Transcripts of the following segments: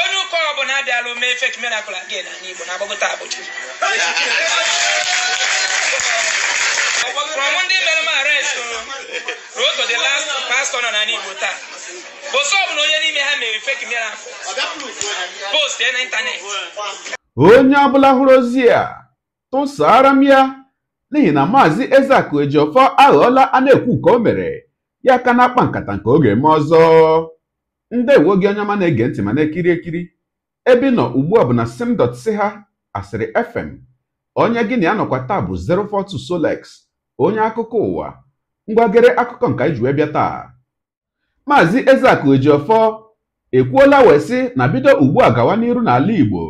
onye ụka ọbụla abịala omee fake miracle again na Igbo na-agbagota abụchi from ndị mere m arrest ruo to the last pastor nọ na Igbo taa bụsọ ọbụla onye n'ime ha mere fake miracle post na ịntanetị onye ọbụla hụrụ ozi a tụsara m ya n'ihi na maazị Ezeaku Ejiofor aghọọla a na-ekwu nke o mere ya aka na-akpa nkata nke oge ma ọzọ ndewo gị onye ọma na-ege ntị ma na-ekiri ekiri ebe nọ ugbu a bụ na ha asịrị fm onye gị na ya nọkwa taa bụ 042 Solex onye akụkọ ụwa ngwagere akụkọ nke anyị ji wee bịa taa maazị Ezeaku ejiofọ ekwuola wee sị na bido ugbu a gawa n'iru n'ala Igbo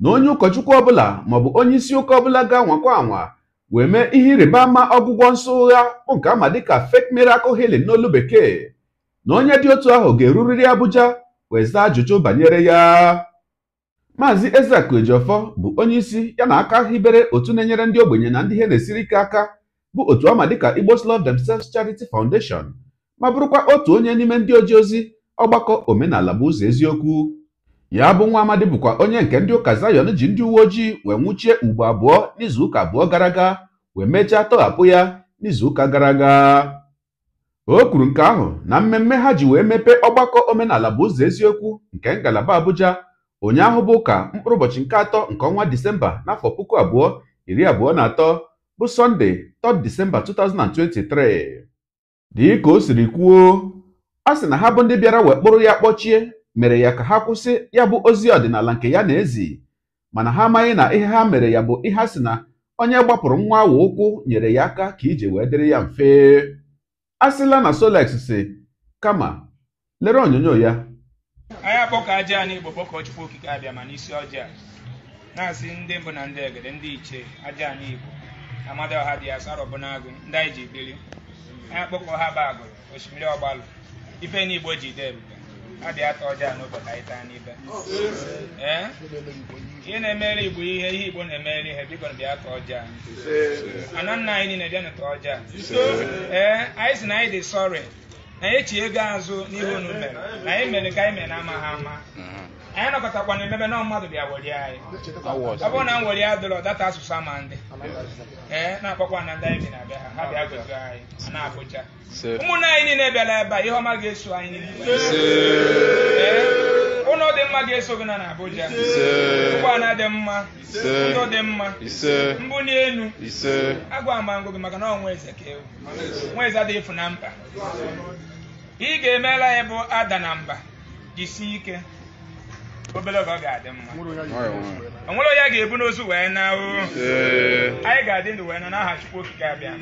na onye ụkọchukwu ọbụla maọbụ onye isi ụka ọbụla ga nwakwa anwa wee mee ihe ịrịba ama ọgwụgwọ nsọ ụgha bụ nke ama dịka fake miracle healing n'olu bekee na onye dị otu ahụ ga-erurịrị Abuja wee zaa ajụjụ banyere ya Maazị Ezeaku Ejiofor bụ onye isi ya na aka hibere otu na-enyere ndị ogbenye na ndị ihe na-esiri ike aka bụ otu ama dịka Igbos Love Themselves Charity Foundation ma bụrụkwa otu onye n'ime ndị oji ozi ọgbakọ omenala bụ ụzọ eziokwu ya bụ nwa amadi bụkwa onye nke ndị ụka zayon ji ndị uwe ojii wee nwụchie ugbo abụọ n'izuụka abụọ gara aga wee mechaa tọghapụ ya n'izuụka gara aga o kwuru nke ahụ na mmemme ha ji wee mepee ọgbakọ omenala bụ ụzọ eziokwu nke ngalaba Abuja ụnyaahụ bụ ụka mkpụrụ ụbọchị nke atọ nke ọnwa Disemba n'afọ puku abụọ iri abụọ na atọ bụ Sọnde 3 Disemba 2023 dịka o siri kwuo a sị na ha bụ ndị bịara wekpụrụ ya kpọchie mere ya ka ha kwụsị ya bụ ozi ọdịnala nke ya na-ezi mana ha amaghị na ihe ha mere ya bụ ihe a sị na onye gbapụrụ nwa awa ụkwụ nyere ya aka ka ije wee dịrị ya mfe asịla na Solex si kama lere onyonyo ya anyị akpọkọ aja anyị Igbo kpọkọ Chukwu Okike abịa ma n'isi ọjị a na-asị ndị mbụ na ndị egede ndị ichie aja anyị Igbo Amadioha dị asarọ bụ n'agụ ndị anyị ji biri anyị akpọkọ ha bụ agụrụ osimiri ọgbalụ ife n'Igbo ji dee ebube adị atọ ọjọọ n'ụbọchị anyị taa n'ibe ihe na-emere igbo ihe ihe igbo na-emere ihe biko na bịa tọọ ọjọọ ana nna anyị niile bịa n'ụtọ ọjọọ ee anyị si na anyị dị sọrị na anyị echi ego azụ n'ihe unu mere na anyị mere ka anyị mere na amaghị ama anyị nọkọtakwana emebe na mmadụ bịa weli anyị ọ bụrụ na m weli adịrọ data asụsụ ama ndị ee na-akpọkwa na ndị anyị bi na abịa ha bịa gozi anyị na abụja ụmụnne anyị niile bịara ebe a ihe ọma ga-eso anyị niile ụlọ dị mma ga-eso gị na abụja ụgbọala dị mma ndụ dị mma mbụ n'elu agwa ma ngụ gị maka na ọ nwa eze ka ewu nwa eze adịghị ịfụ na mba ị ga-emela ya ada na mba jisie ike obere oge ọ ga-adị mma onwere onye ga-ebu n'ozu wee na anyị ga-adị ndụ wee na n'aha Okike abịa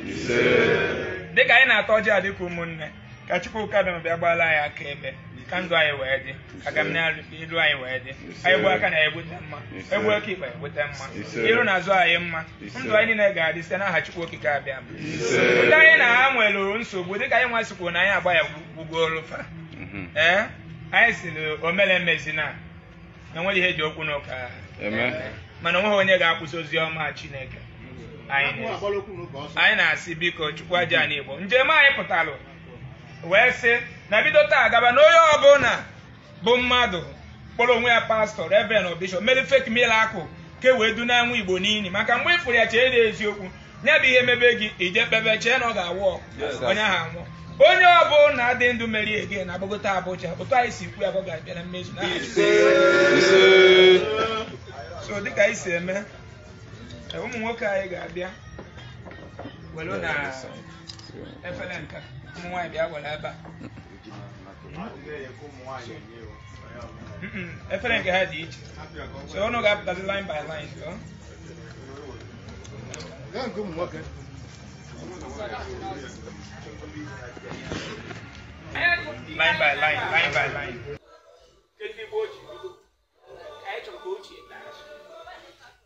dịka anyị na-atọ ọjị a ụmụnne ka Chukwu Okike abịa bịa gbaala anyị aka ebe ka ndụ anyị wee dị ka m na anyị wee dị anyị gbuo aka na egbute mma egbuo aka ikpe egbute mma iru na azụ anyị mma ndụ anyị niile ga-adị site n'aha Chukwu Okike abịa ndị anyị na ha nwere nsogbu dịka anyị nwa sikwuo na anyị agba ya gwugoro fa mhm. ee anyị siri omere mezina na enweghị ihe ji okwu n'ụka eh, mana onweghị onye ga-akwụsị ozi ọma Chineke anyị na-asị biko chukwu aja anyị igbo njem anyị pụtalụ wee sị na bido taa gaba na onye ọbụla bụ mmadụ kpọrọ onwe ya pastọ reverend bishọp mere fake akụ ke wee du na anwụ igbo n'ili maka mgbe ị fụrụ ya chee na eziokwu nye bụ ihe mebe gị ije kpebe chee na ọ ga-awụ ọkụ onye ahụ anwụọ onye ọbụla na-adị ndụ meri ege na agbagota abụcha otu anyị si kwu ya bụ ga-abịa na mmezu na so dịka anyị si eme e, ụmụ nwoke anyị ga-abịa welu na efere nka ụmụ nwaanyị bịa ebe a efere nke ha dị iche so ga-apụtazi line by line Line by line, line by line. Kedụ igbe ochie bido? Anyị chọrọ ka process daa.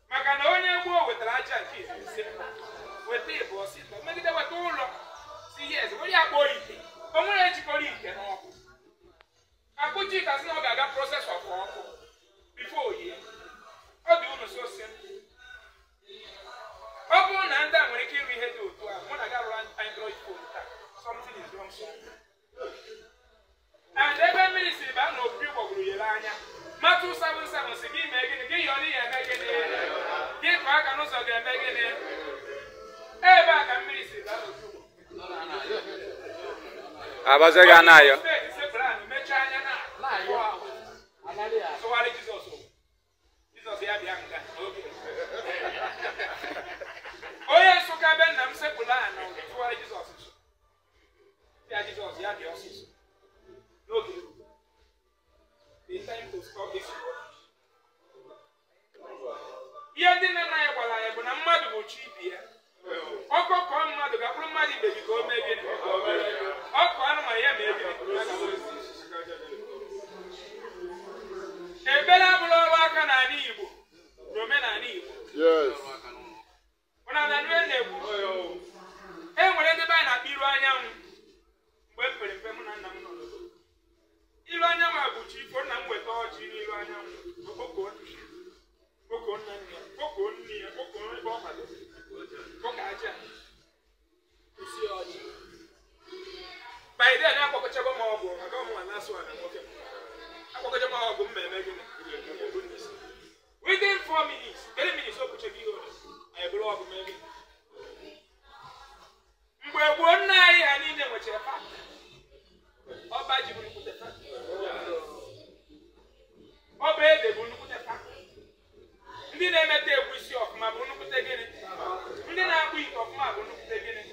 Maka na onye gboo wetara aja nke so simple. ọ bụrụ na ndị a nwere ike iri ihe dị otu a mụ na gị arụrụ android phone taa something is wrong and ebe mmiri si baa na obibi gbọgburu yere anya matụ 77 si gị mee gịnị gị yọrọ ihe eme gịnị gị kọ aka n'ụzọ ga-eme ebe a mmiri si baa n'obibi abazi gị ayọ. tụgharị jizọs jizọs ya bịa nga onye ka be nna m sekpụrụ aha na tụwara jizọs nso ya jizọs ya bịa ọsịsọ n'oge ihe ndị nne na ya gwara ya bụ na mmadụ bụ chi ibi ya ọkọ kọọ mmadụ ga bụrụ mmadụ ibe gị ka o mebie ọ ọkụ anụmanụ ya ma ebi ebere abụrụ ọrụ aka n'ala Igbo n'omenala Igbo four minutes, three minutes, ihe ole anyị bụrụ ọgụ mmeri mgbe gboo nna anyị ha niile nwechara ọba ji bụ nnukwute fakta ọba ede bụ nnukwute taa ndị na-emeta egwu isi bụ nnukwute gịnị ndị na-akpụ ite ọfụma bụ nnukwute gịnị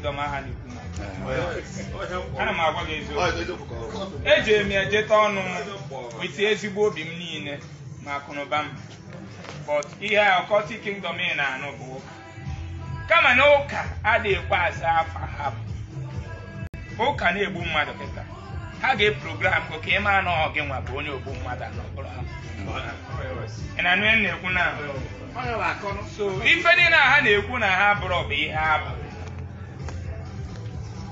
kingdom aha na ana m agwa gị eziokwu ejere e m ejeta ọnụ m weta ezigbo obi m niile ma akụnụba m but ihe a ọkọti kingdom ị na-anụ bụ ụka." kama na ụka adịghị ekwe asa afa ha ụka na-egbu mmadụ kịta ha ga-eprogram gị ka ị maa na ọ nwa bụ onye ogbu mmadụ ị ha. anụ na-ekwu na so ife dị na ha na-ekwu na ha bụrụ bụ ihe abụ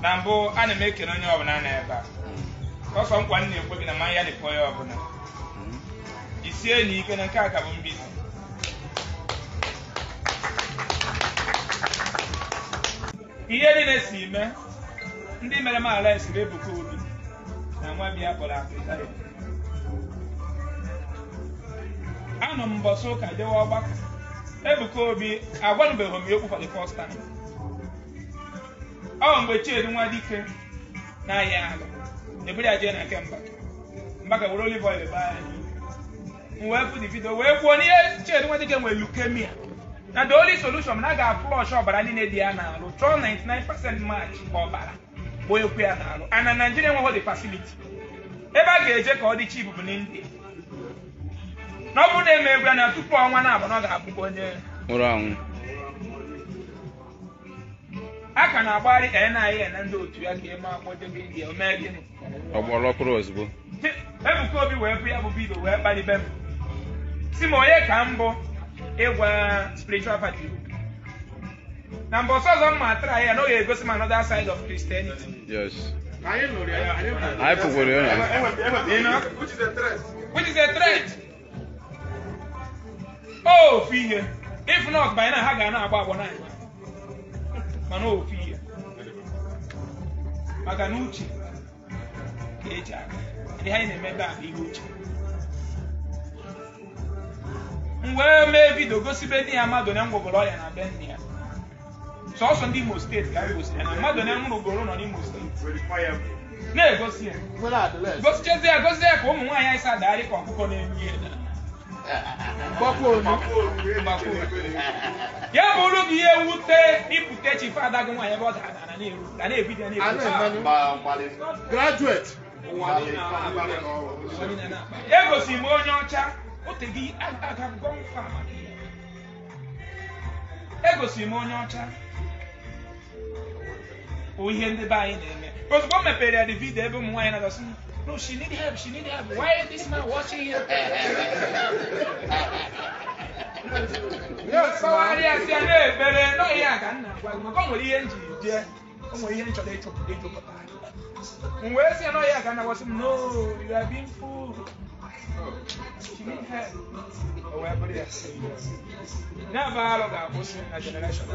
na mbụ ana m ekele onye ọbụla na ebe a ọsọ nkwa m na-ekwe gị na ma ya dịkwa onye ọbụla isi enyi ike na nke a ka bụ mbido ihe niile si ime ndị mere m ala esiri ebuka obi na nwa biya kpọrọ afrịka anọ m mbọsị ụka jewe ọgbakọ ebuka obi agwanụbeghị m ya okwu ọ mgbe Chinedu nwa dike na-ahịa ala eburu ya jee na nke Mbaka Mbaka were olive oil baa anyị m wee pụ divido wee kwuo n'ihe Chinedu nwa dike nwere leukemia na the only solution na ga flush ọbara niile dị ya n'arụ chọọ 99% match ka ọbara ekwu ya n'arụ ana Naijiria enweghị dị facility ebe a ga-eje ka ọ dị chip bụ n'India na ọ e bụrụ na emegbu ya na tupu ọnwa na-abụ na ọ ga-abụkwa onye nwụrụ anwụ a ka na-agbagharị ka ya na-ahịa na ndị otu ya ka eme akpọdebe gị omee gịnị ọgbọrọ ọkpụrụ ozugbo ebuka obi wee bụ ya bụ bido wee kpalibe m si m onye ka bụ ịgwa spiritual party na mbụ ọsọ ọzọ m ma ya egosi m another side of Christianity ha ga mana ofu ihe maka na uche ka eji aga ihe anyị na-eme ebe ihe uche mgbe wee mee vidio gosibe ndị ya mmadụ na ngwogoro ọrịa na be nne ya sọsọ ndị imo steeti ka anyị ya na mmadụ na nwụrụ ugoro nọ n'imo steeti na-egosi ya gosichazi ya gosi ya ka ụmụ nwaanyị anyị sa adagharị ka ọkụkọ na-enu ihe ya bụrụ gị ihe wute ịpụta chi fada gị nwaanyị ebe ọ ga na-ebido graduate egosi m onye ọcha otegị agagọ mfa egosi m onye ọcha bụ ihe ndị be anyị na-eme ozugbo m mepere ya dị vidio ebe ụmụ nwaanyị na-agasi No, she need help. She need help. Why is this man watching his Yes, ma. Why are you saying But no, yeah, can na. Why ma come with the engine? Yeah, come with the engine. They today, they chop. Mwe si ano ya kana was no you are being fooled. She need help. Oh, where body is. Na ba lo ga bosi generation.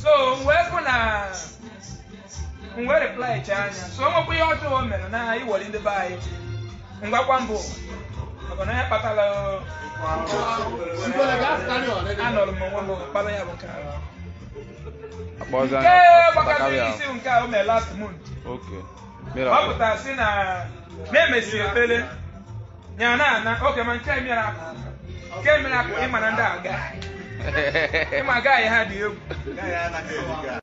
So, mwe kuna ngwa replaichi anya so nwekwa ihe ọjọọ o mere na iwere ndị be anyị ngwakwa mbụ maka na ya kpatala anọrọ m onwe m kpara ya bụ nke gbakara isi nke o mere last month ọ pụtara si na na-emesiri ekpere ya na ana oke ma nke mere nke mere akụ ịma na ndị aga ịma agaghị ha dị egwu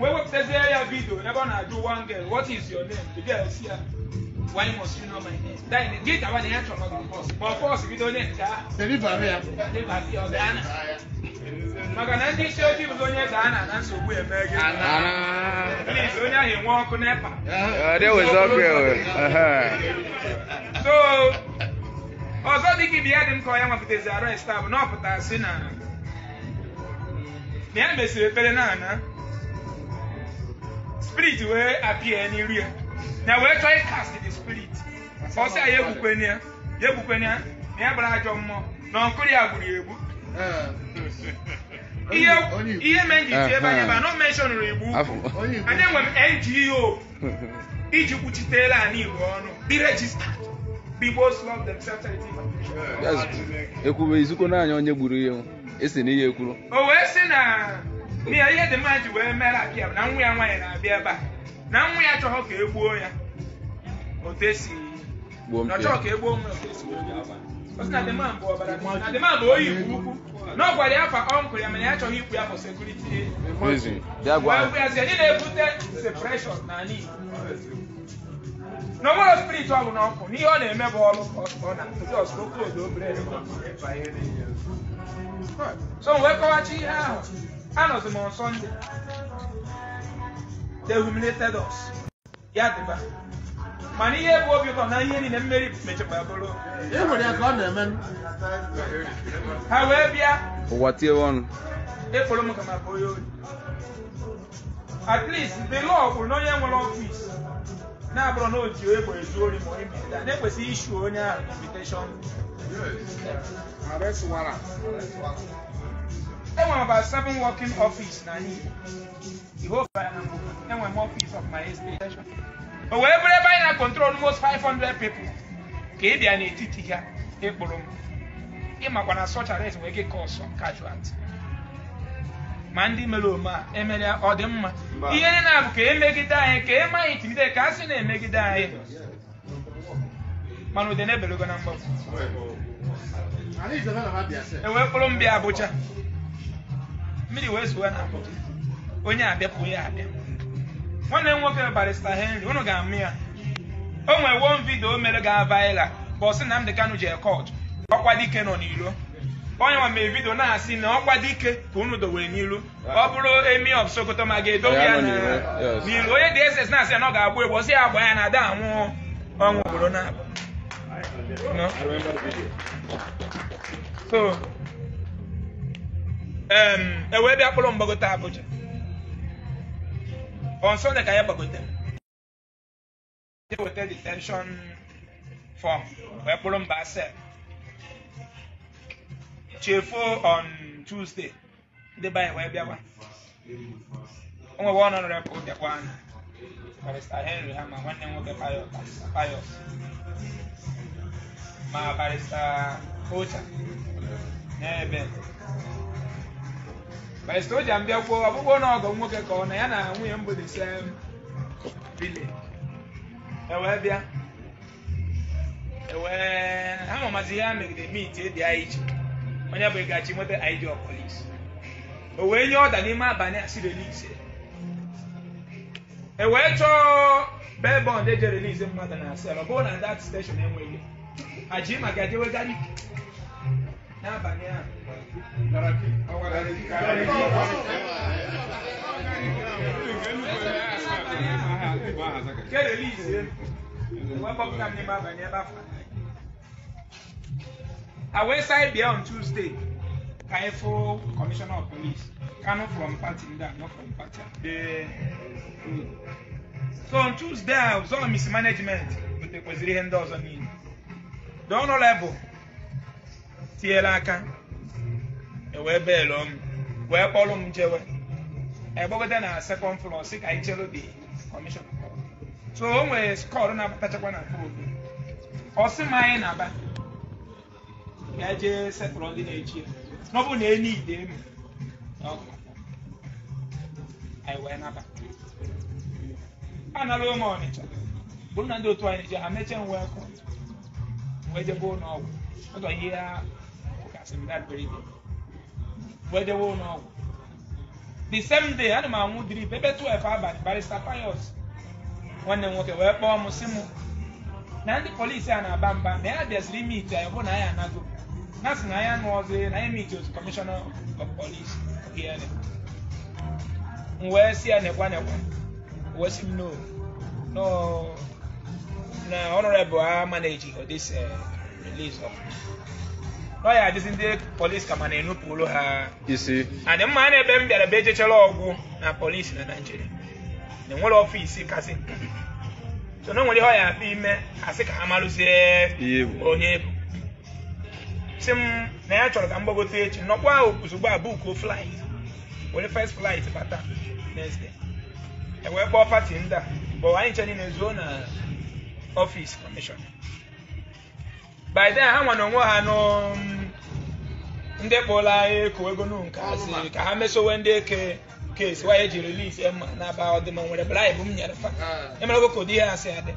wewe kuchezea ya video never na do one girl what is your name the girl see her why must you know my name then get our name from the boss but boss video name ka sebi bare ya sebi bare ya dana maka na ndị isi ojii bụ onye ga-ana na nsogbu eme gị please onye ahụ enwe ọkụ nepa so ọzọ dị ka ibi ya dị m ka onye nwapụtazi arrest a bụ na ọ pụtara si na na ya mesịrị ekpere na ana spirit wey appear anywhere na wey try cast the spirit ọsẹ ayé ebukwe ni ya yé ebukwe ni ya na ya bara ajọ mmụọ na ọkụrụ ya gburu egbu ihe ihe mee nji tie ebe anya ba nọ menshọnụrụ igbo ukwu anya nwe ngo iji kwuchitela ala igbo ọnụ dị rejista ekwube izukwu naanị onye gburu ihe esi na ekwuru o oh, wee sị na n'ihe ihe dị mma ji wee mere abịa na nwa ya nwaanyị na-abịa ebe a na nwa ya chọghọ ka e gbuo ya otu esi na ọchọọ ka e gbuo nwa otu esi osi na bụ ọbara na bụ oyi ukwu na ọ gwara ya fa ọnkụl mana ya ya na-ebute na na bụ n'ọkụ n'ihe ọ na-eme bụ ọrụ ọ na obere wee kọwachi ihe ahụ anọzi m on Sunday they humiliated us ya dịba mana ihe bụ obi ụtọ na ihe niile mmeri mechakwa bụrụ e ha wee bịa ụwa tie ọnụ ekporo m ka ma bụ oyi at least the law kwuru na onye nwere ọfịs na-abụrụ na oji egbe ezu ori ma onye mbita na-ekwesịghị isu onye ahụ invitation enwere about seven working office na enwere m office of my expectation o wee bụrụ ebe anyị na control most 500 people ka ị bịa n'etiti ha ịkpụrụ m ịmakwa na such arrest wee gị kọsọ casualty ma ndị mere ome a emere ọ dị mma ihe dị na bụ ka emegide anyị ka eme anyị timide ka a sị na-emegide anyị mana ụdị na-ebelego na mgbapụ ewee kpụrụ m bịa Abuja mmiri wee zuo na onye abịapụ ya abịa nwanne m nwoke barista henry unu ga-amụ ya o nwee won vidio o mere ga vaịla ka ọ sị na Nnamdi Kanu jee ọkwa dike nọ n'ilo onye nwa mere vidio na-asị na ọkwa dike ka unu dowere n'ilu ọ bụrụ emi of Sokoto ma ga-edobe ya n'ilu onye dị eze na-asị na ọ ga-agba egwu ọsị ya agba ya na ada anwụ ọnwụ obodo na-abụ e wee bịa kpụrụ mgbagote abụja on Sunday ka ya gbagote weta detention form wee kpụrụ mba asep chefuo on Tuesday ndị be wee bịa o nwewe ọnụ nọrọ ka ụbịakwa anyị barista Henry ha ma nwanne m nwoke Payos ma barista Ocha n'ebe Mr. Oja mbịakwuo ọbụbụ na ọgọ nwoke ka ọ na ya na nwunye mbụ m bụ the same E wee bịa E wee ha mamazi ihe a megide mit edi anyị iche onye bụ ịgachi nweta id of police o wee nye ọda n'ime abalị asị relise e wee chọọ bel e eji relise mmadụ na asel ọ bụrụ na dat steshọn enweghị aji maka jewegari n'abalị ahụ awesai bia on tuesday kaifo commissioner of police kano from party nda no from party so on tuesday i was on mismanagement kwesịrị ihe ndị ọzọ niile Don't know level. tiela aka wee belụọ m wee kpọrọ m jewe egbogota na sekọnd flọ si ka anyị chere kọmishọn so o nwere skọl na-abatachakwa na foobi ọsị m anyị na-aba ga jee setụrụ ndị na-echi ya n'ọbụ na enyi ide m anyị wee naba anala ụmụ ọnịcha bụrụ na ndị otu anyị ji amecha m wee kọ wee jebe ọgwụ ihe kasị m wee dewe ụlọ ọgwụ the same day ana m anwụ drip ebe 12 abalị barista payos nwanne m nwoke wee kpọọ m si m na ndị polisi a na-aba mba na ya bịaziri ime ite anyị hụ na anyị anago na sị na anyị anụ ọzọ na anyị meet otu kọmishọna of polis m wee si a nekwa nekwa wee si m no lọya adịzi ndị polisi ka ma na olu ha isi adị mma na ebe m bịara be ejechara ọgwụ na polisi na naijiria na enwere ọfịs kasị so na nwere ihe ọ ya apụ ime asị ka ha marụzie onye bụ si m na ya chọrọ ka m gbagote echi nọkwa ahụ ozugbo a bukuo flight were first flight bata nesde. e wee kpọọ pati ndị a bụ anyị nche na zuo na ọfịs kọmishọn by then ha nwa na onwe ha mm, ndị anyị eko ego nu nke asị ka ha mesowe ndị eke kesi wanye ji relis ema na-aba ọdịm nwere bala ibu m nyere fa emere ogo ka ihe asị adị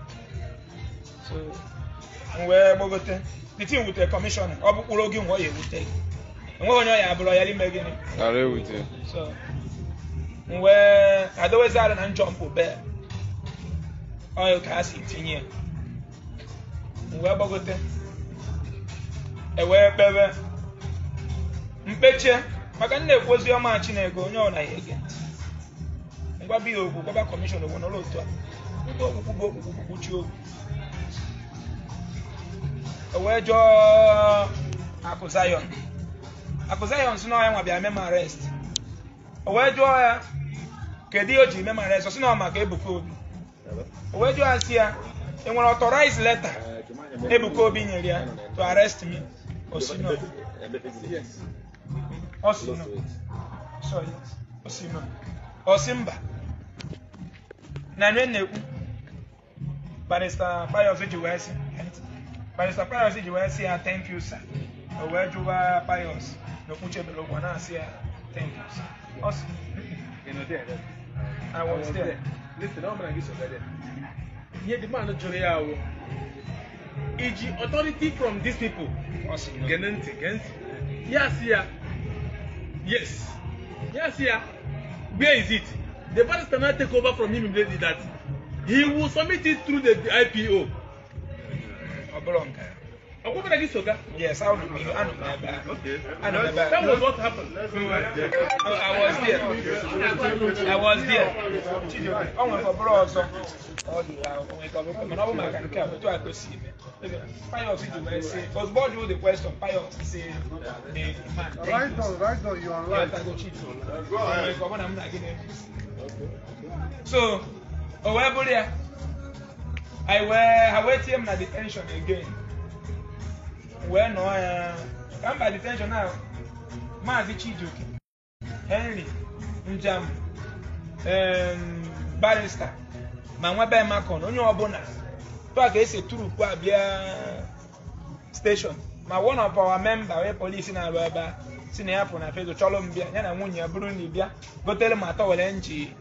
wee gbagote piti wutere kọmishọna ọ bụkpụrụ oge e nwa ya ewute enweghị onye ọya abụrụ ya n'ime gịnị wee adowezi arụ na njọ mpụ ọyụ ka ha si tinye ya wee gbagote ewee kpewe mkpeche maka nna ekwu ozi ọma chineke onye ọ ya ege ntị ngwa biya okwu gwaba kọmishọn owu n'ụlọ otu a ndị okwukwu bụ okwukwu kwuchi okwu ewee jụọ akụ zayon akụ zayon si n'ọhịa nwa bịa mem arest ewee jụọ ya kedu ihe o jiri mema arest si na ọ maka ebuka obi ewee jụọ ya si ya enwere ọtọraịz leta ebuka obi nyere ya to arrest me so Yes. Osino. Sorry. Osino. Osimba. Na nwe na-ekwu Barrister Pius ji wee sị Barrister Pius ji wee sị ah, ya thank you sir. O wee jụwa Pius na okwu chebere ụgwọ na-asị ya ah, thank you sir. Ọ sị. I was there. Listen, ọ mara gị so there. Ihe the man jụrụ ya ahụ. Iji authority from these people gene ntị yes ya yes yes ya where is it the barrister cannot take over from him immediately that he will submit it through the IPO. ọ What did I get Yes, I don't know. I don't know. Okay. I know. That was what happened. Oh, I was there. I was there. Uh, I went for bros. Oh, yeah. I went for bros. I went for bros. I went for I Pius to mercy. Because God knew the question. Pius say, the man. Right on, right on. You are right. So, oh, where, Bulia? I were, I wait him at the tension again. wee nọọ ya ka mba detenshọn a maazị chijioke henry njam barista ma nwebe makon onye ọbụla tụa ka esi a bịa steshọn ma one of our member onye polisi na-arụ ebe a si na ya pụ na fedo chọlụ m bịa ya na nwunye ya bụrụ na ị bịa gotere ma atọ were nji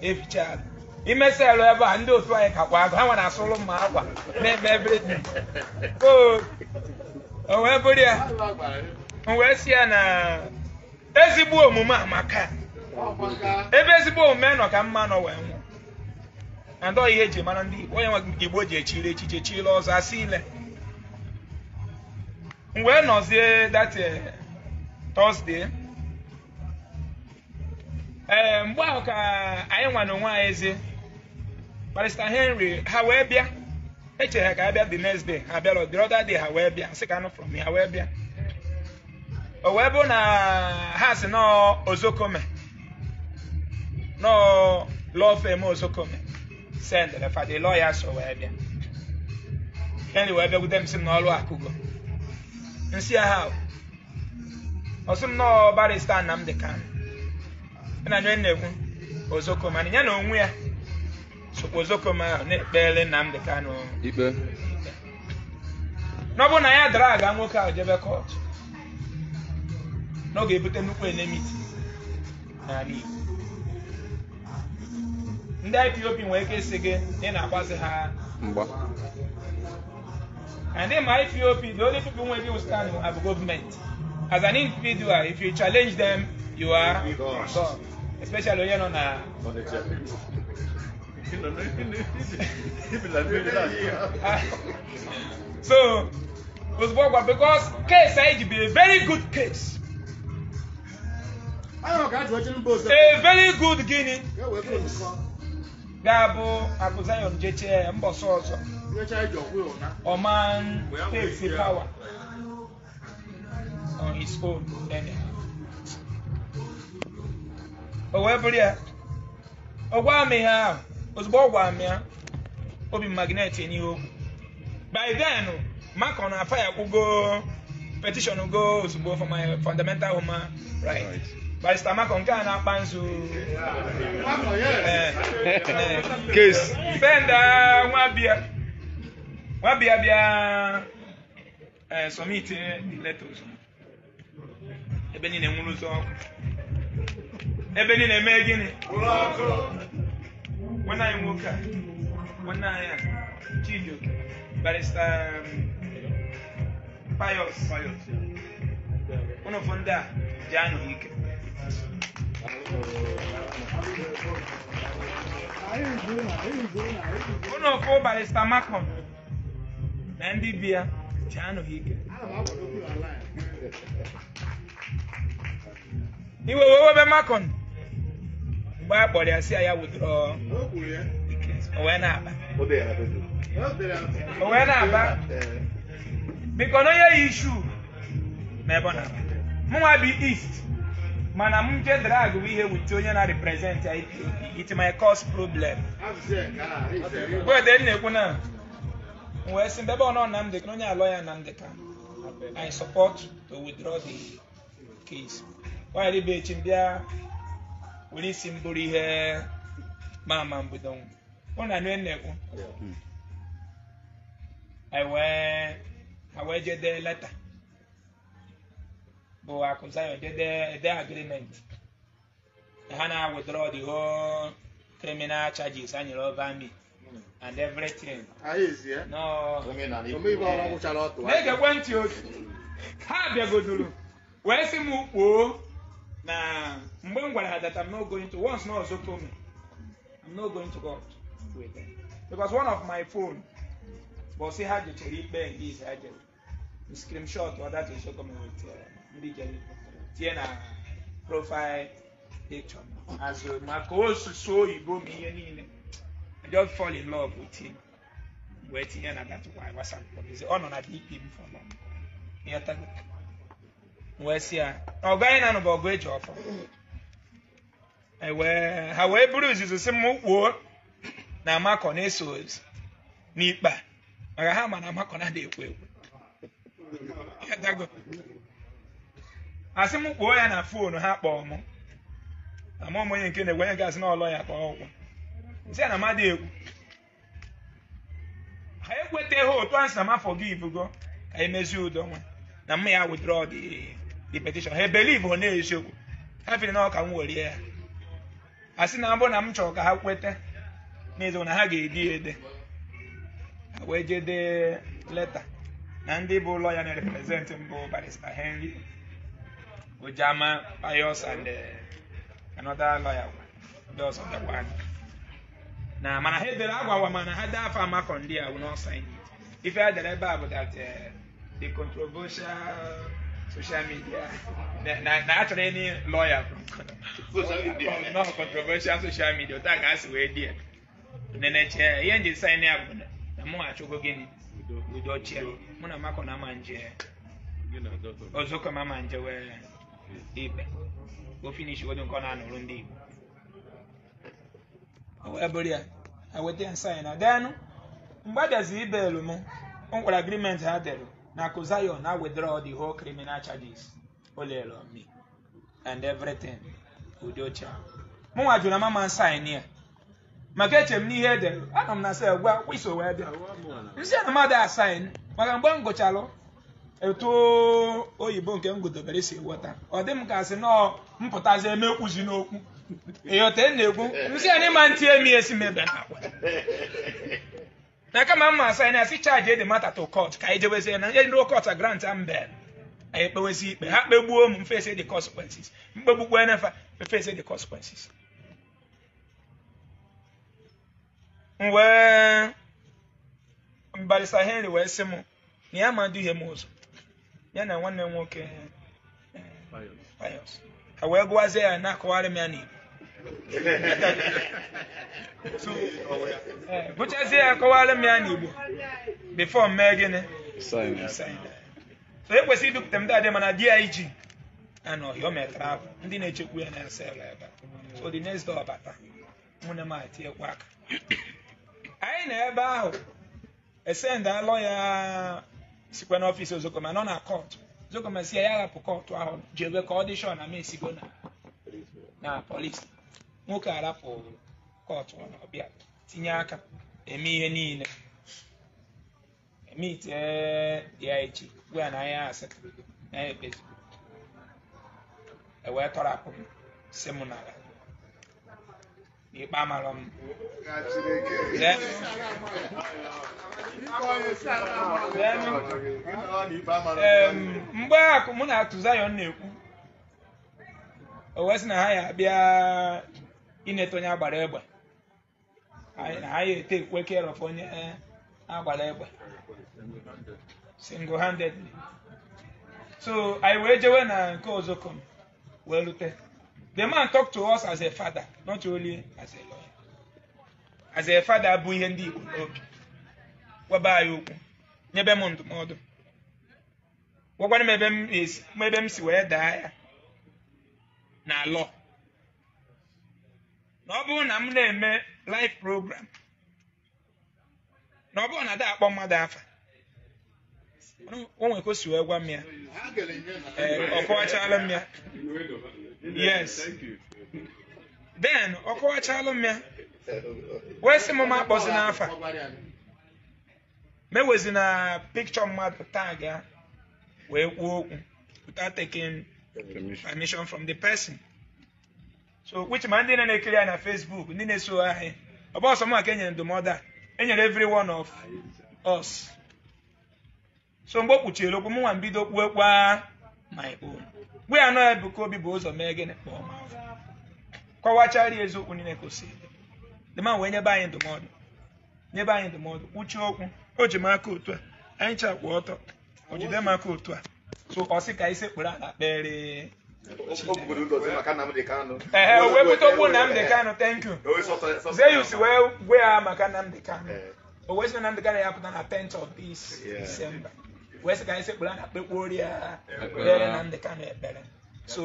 eficha ala imesịa arụ ebe a ndị otu anyị kakwa agụ ha nwere asụrụ m akwa na-eme everything o wee bụrụ ya m wee si ya na ezigbo omume amaka ebe ezigbo omume nọ ka mma nọ wee nwụọ na ndị ihe eji mara ndị Igbo onye nwe Igbo ji echiri echiche chile ọzọ asị ile m wee nọzie that eh, Thursday ee eh, mgbe ahụ ka anyị nwa na onwe anyị ezi Barrister Henry ha wee bịa echere ha ka abịa bịa the next day ha bịara the other day ha wee bịa sị ka anụ from ha wee bịa o wee bụ na ha si na ozokome na law firm ozokome sendere fa the lawyers o wee bịa henry wee bịakwute m sị m na ọrụ akụgo nsị ha ọsị m na barista Nnamdi Kanu na onye na-ekwu ozokome mana ya na onwe ya Ozokoma na-ekpele Nnamdi Kanu ikpe n'ọbụ na ya dara aga nwoke ahụ jebe kọt na ọ ga-ebute nnukwu elemiti n'ala Igbo ndị IPOP nwere ike isi gị ị na-agbazi ha mgba and in my IPOP the only people wey dey stand are government as an individual if you challenge them you are gone especially onye nọ na so, was because case Said be a very good case. A very good guinea. Gabo Abuzayon JTA Mboso. Oman takes the power on his own anyhow. However, yeah. me have ozugbo ọ amịa obi magneti n'ihe okwu by then makon afa ya kwụgo petishọn go ozugbo for my fundamental human right barista makon nke a na-akpa nzu benda nwabia nwabia somit leta ozugbo ebe niile nwere ụzọ ọkụ ebe niile mee gịnị When I woke up, when I uh, Chidio, Barrister um, Pius, Pius, yeah. one of Fonda, Jano Hike. One of four Barrister Macon, Nandi Bia, Jano Hike. Iwe wewe be Macon. mgbe a kpọrọ ya si ya wụdụrụ o wee na-aba wee na-aba biko na onye yi isu n'ebe ọ na-aba mụnwa bi east mana m je drag bụ ihe wute onye na-represent ya it my cause problem wede e na-ekwu na wee sị mbebe ọnọ Nnamdi ka onye alọ ya na ndị ka I support to withdraw the case. Why did they bịa were isi m bụrụ ihe mama mbido mụ na nne na-ekwu ha hmm. wee jede leta bụ akụzayo jede agreement ha na withdraw the whole criminal charges anyere over me hmm. and everything na-egekwe ntị oge ha bịagoduru wee sị m Kpoo na that I'm not going to once na ọzọ told me I'm not going to God with them because one of my phone bọsị ha jechere ikpe ndị ise ha jere screenshot ọdachi nsogọmenti ndị jere tie na profile picture azụ maka osusu oyibo m me, niile I just fall in love with him wee tinye na datụkwa WhatsApp ọ nọ na dp m for long wee sị ya ọ gaghị na nụba ọgụ eji ọfọ ewee ha wee buru izuzu si m kwuo na amakọ na-eso ozu n'ikpe maka ha ma na amakọ na-adị ekwu ekwu asị m kpoo ya na foonu ha kpọọ mụ. ama m onye nke na-egwe onye gasị na ya kpọọ ụkwụ nsị ya na mmadụ ekwu ha ekweteghị otu a sị na m gị ibugo ka e emezie udo nwa na mma ya withdraw dị petition ha ebelive ọ na-eziokwu ha fere na ọka m werie ya asị na abụ na m chọrọ ka ha kweta n'ezo na ha ga-ede ede ha wee jee dee leta na ndị bụ lọya na-represent mbụ barista Henry Ojama Pius and eh, another lawyer ndị ọzọ dakwa na mana ha edere agwawa mana ha dee afọ amakọ ndị a ife ha dere ebe a bụ that eh, the controversial social media na achọrọ ịnị lọya nọọ controversial social media ụta ka a si wee dị ya neneche ihe nji sain ya bụ na mụ achọgo gịnị udo chia mụ na makọ na ma nje ọzọ ka ma nje wee ibe o finish wedo nke na-anụrụ ndị Igbo o wee bụrụ ya eweta nsaị na gaanụ mgbe adịazi ibelu m o nwere agrimenti ha dere nakụ zion na withdraw the whole criminal charges olele on me and everything Udocha mụnwa jụrụ na mama sign ya maka eche m n'ihe edere anọ m na sel gwa wiso wee bịa nsi na mmadụ asain maka mgbe m gụchalụ etu oyibo nke m gụdobere si ghọta ọ dị m ka sị nọọ mpụtazi emekwuzi n'okwu ịghọta e na-ekwu nsị na ịma ntị emi esi mebe na akwa na kama mma asa na si charge the matter to court ka eje wezi na ndị court a grant am bem anyị kpewezi ikpe ha buo m face the consequences mkpegbukwe nafa face the consequences wee mbarisa henry wee sị m na ya ma duhie m ụzọ ya na nwanne m nwoke payos ka wee gụwazie ya na ko m ya n'igbo bụchazie ya kọwara m ya n'Igbo bifọ mee gịnị so ekwesịrị idupụta ndị adị mana di ya iji na ọhịa metara ahụ ndị na-echekwu ya na ya sel ebe so the next door bata nwunye m atinyekwa aka anyị na ebe ahụ esend alọ ya sikwa n'ọfịs ozokoma nọ na kọtụ ozokoma si ya ya hapụ kọtụ ahụ jebe ka ọ dị shọ na m esigo na polisi nwoke arapụrụ kọtụ na ọbịa tinye aka eme ihe niile emit dị ya echi gwa ya na anya asị na ya ekpezi ewee tọrapụ m si m n'ala n'ikpe amara m mgbe akụ mụ na atụ zayon na-ekwu o wee sị na ha ya bịa. ịneta onye agbara egbe na anyị ete ekwe care of onye eh, agbara egbe single handedly so anyị wee jewe na nke ozokom wee rute the man talk to us as a father not only as a lawyer as a father bụ ihe ndị Igbo n'obi gwaba anyị okwu nyebe m ndụmọdụ gwakwana m ebe m si wee daa ya na alọ na ọ bụrụ na m na-eme live program na ọ bụrụ na ndị akpọ mmadụ afa o nwere wee gwa m ya eh, ọ kọwachala m ya yes then ọ kọwachala m ya wee sị m m akpọzi n'afa mewezi na pikchọ mmadụ taa ga wee kwuo okwu without taking permission from the person. so which ma ndị na-ekiri anyị na Facebook ndị na-eso anyị ọ bụ ọsọ enyere ndụmọdụ a enyere every one of us so mgbe o kpuchiri okwu m nwa mbido kpuo kwa my own gwe ya anọghị bụ ka obi bụ ụzọ mee gịnị kpọọ m kọwachara eziokwu niile kwụsị dị ma wee nyebe anyị ndụmọdụ nyebe anyị ndụmọdụ kpuchie okwu o ji m aka otu a anyị chakwa ọtọ o jide m aka otu a so ọ sị ka anyị kpụrụ ala kpere ee wepụta okwu Nnamdi Kanu thank you Zeus wee gwee maka Nnamdi Kanu o wee sị na Nnamdi Kanu ya pụta na 10th of this December wee sị ka anyị sekpụrụ anya kpekpuoro ya kpere Nnamdi Kanu ekpere so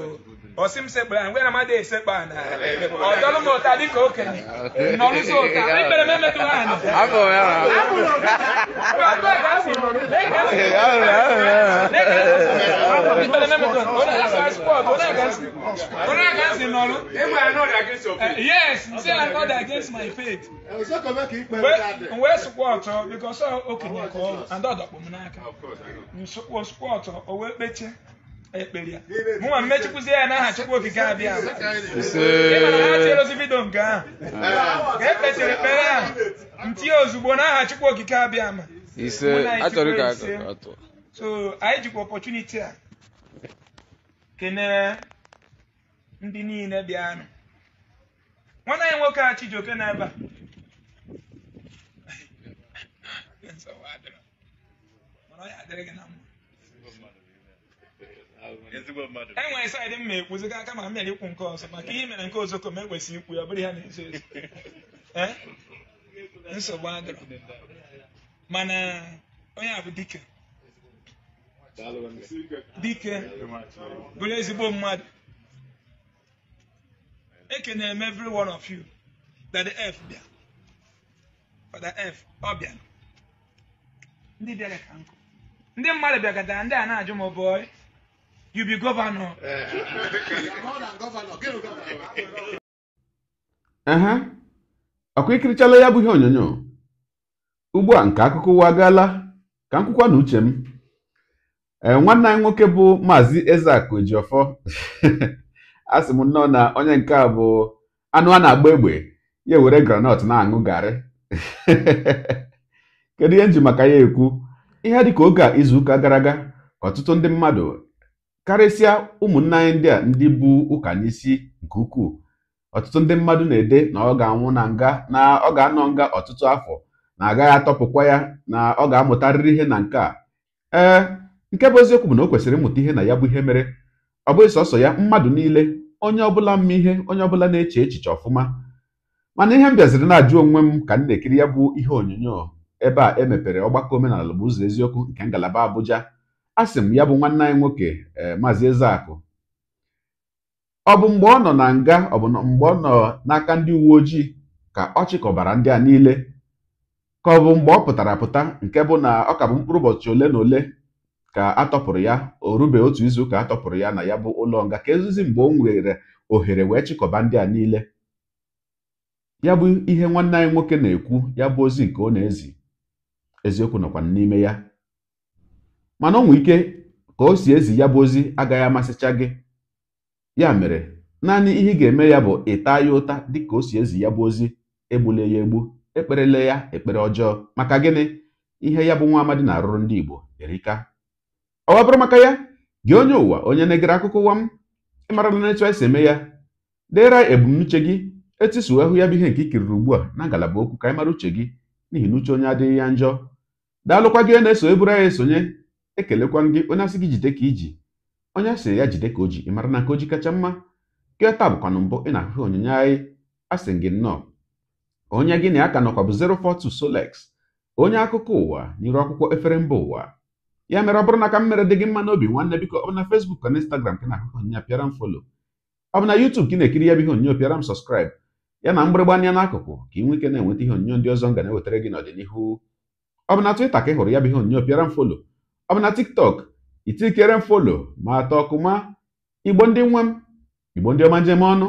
ọ sị m sekpụrụ anya ngwe na mmadụ esekpa na ọ dọlụ m ụta dịka okenye nọrụzi ụta ikpere m emetụrụ anya abụrụ ụta Ìfẹ́lẹ́ mẹ́mẹ́ tó o against your faith. Yes, say I against my faith. nwee eh, oh, and n'aka. o ekpere ya. ya n'aha Chukwu Okike ma ha tierozi nke ahụ. Ka e ntinye ozugbo n'aha Chukwu Okike abịa ma. So anyị jikwa opportunity ah. kenee ndị niile bịanụ nwanne anyị nwoke a Chijioke n'ebe a enwere e saịdị m ekwuziga aka ma m bịara ikwu nke ọzọ maka ihe mere nke ozoko ma ekwesịghị ikwu ya ọ bụrụ ya na-ezo ezo eh? nsogbu adịrọ mana onye a bụ dike dike bụrụ ezigbo mmadụ ekenere m every one of you that the f bịa f ọ bịa ndị bịara ka nkụ ndị mmadụ bịagatara ndị a na-ajụ m oh boy you be governor ehe ọkwa ikirichala ya bụ ihe onyonyo ugbu a nke akụkọ ụwa ka nkwụkwa na uche m E, nwanne anyị nwoke bụ maazị Ezeaku Ejiofor asị m nnọọ na onye nke a bụ anụ a na-agba egbe ya ewere granọt na-aṅụ garị kedu ihe nji maka ya ekwu ihe dịka oge a izuụka gara aga ọtụtụ ndị mmadụ karịsịa ụmụnne anyị ndị a ndị bụ ụka n'isi nke ukwuu ọtụtụ ndị mmadụ na-ede na ọ ga-anwụ na nga na ọ ga-anọ nga ọtụtụ afọ na agaghị atọpụkwa ya na ọ ga-amụtarịrị ihe na nke a ee nke bụ eziokwu bụ na o kwesịrị ịmụta ihe na ya bụ ihe mere ọ bụghị sọsọ ya mmadụ niile onye ọbụla mma ihe onye ọbụla na-eche echiche ọfụma mana ihe m bịaziri na-ajụ onwe m ka m na-ekiri ya bụ ihe onyonyo ebe a emepere ọgbakọ omenala bụ ụzọ eziokwu nke ngalaba Abuja a sị m ya bụ nwanne anyị nwoke e, maazị Ezeakụ ọ bụ mgbe ọ nọ na nga ọ bụ mgbe ọ nọ n'aka ndị uwe ojii ka ọ chịkọbara ndị a niile ka ọ bụ mgbe ọ pụtara pụta nke bụ na ọ ka bụ mkpụrụ ụbọchị ole na ole ka atọpụrụ ya o rube otu izu ka atọpụrụ ya na ya bụ ụlọ nga ka ezizi mgbe o nwere ohere wee chịkọba ndị a niile ya bụ ihe nwanne anyị nwoke na-ekwu ya bụ ozi nke ọ na-ezi eziokwu nọkwa n'ime ya mana ọ nwee ike ka o si ezi ya bụ ozi agaghị amasịcha gị ya mere naanị ihe ị ga-eme ya bụ ịta ya ụta dịka o si ezi ya bụ ozi egbule ya egbu ekperele ya ekpere ọjọọ maka gịnị ihe ya bụ nwa amadi na-arụrụ ndị Igbo erika ọ bụrụ maka ya gị onye ụwa onye na-egere akụkọ ụwa m ịmarala na etu anyị si eme ya dera ebumnuche gị etisuo ehu ya bụ ihe nke ikiriri ugbu a na ngalaba okwu ka anyị mara uche gị n'ihi na uche onye adịghị ya njọ daalụkwa gị na-eso eburu anyị esonye ekelekwa gị onye asị gị jide ka iji onye asị ya jide ka o ji ịmara na nke o ji kacha mma nke taa bụkwanụ mbụ ị na-ahụ onyinye anyị asị gị nnọọ onye gị na ya ka nọkwa bụ 042 Solex onye akụkọ ụwa n'iru akwụkwọ efere mba ụwa ya mere ọ bụrụ na ka m mere dị gị mma n'obi nwanne biko ọ bụ na Facebook ka na Instagram ka na-akụkọ onyinye pịara m folo ọ bụ na YouTube ka ị na-ekiri ya bụ ihe onyonyo pịara m sọskraịbụ ya na mgbịrịgba anya n'akụkụ ka ị nwee ike na-enweta ihe onyonyo ndị ọzọ m ga na-ewetara gị n'ọdịnihu ọ bụ na Twitter ka ị hụrụ ya bụ ihe onyonyo pịara m folo ọ bụ na TikTok itikere m folo ma atọ ma igbo ndị nwa m igbo ndị ọma njem ọnụ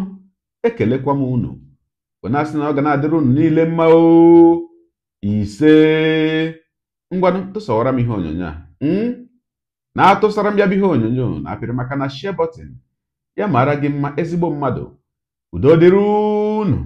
ekelekwa m unu onye na ọ ga na-adịrị unu niile mma o ise ngwanụ tụsawara m ihe onyonyo a Hmm? na-atụsara m ya bụ ihe onyonyo na-apịrị maka na shie bọtịn ya maara gị mma ezigbo mmadụ udo dịrị unu